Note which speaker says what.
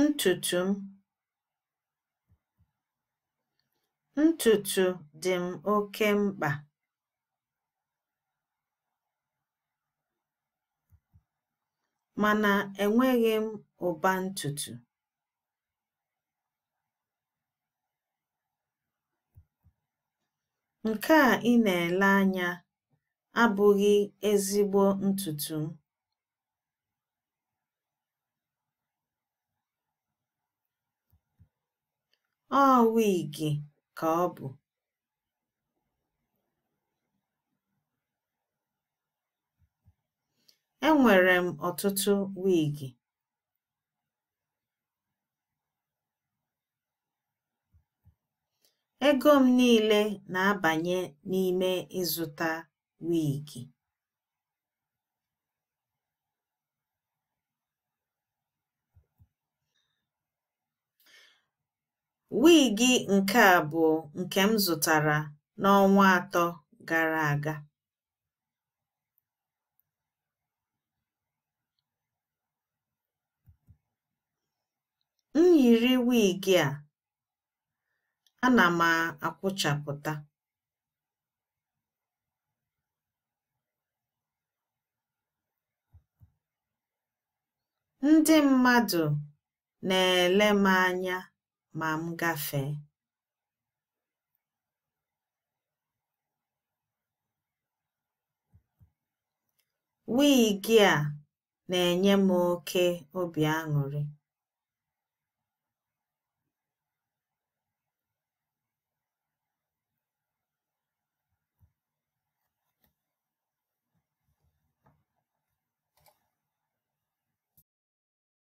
Speaker 1: Ntùtù m Ntùtù dị m oke mkpa. Mana enweghị m ụba ntùtù. Nke a ị na-ele anya abụghị ezigbo ntùtù m. Ọ wịgị ka ọ bụ. Enwere m ọtụtụ wiigi Ego m niile na abanye n'ime ịzụta wigi. Wigi nke a bụ nke m zụtara n'ọnwa atọ gara aga. M yiri wigi a, ana m akwụchapụta. Ndị mmadụ na-ele m anya. ma m gafee Wigi a na-enye m oké obi aṅụrị.